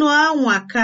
Unu anwaka!